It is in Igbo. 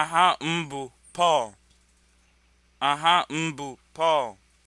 aha mbụ Pọl aha mbụ Pọl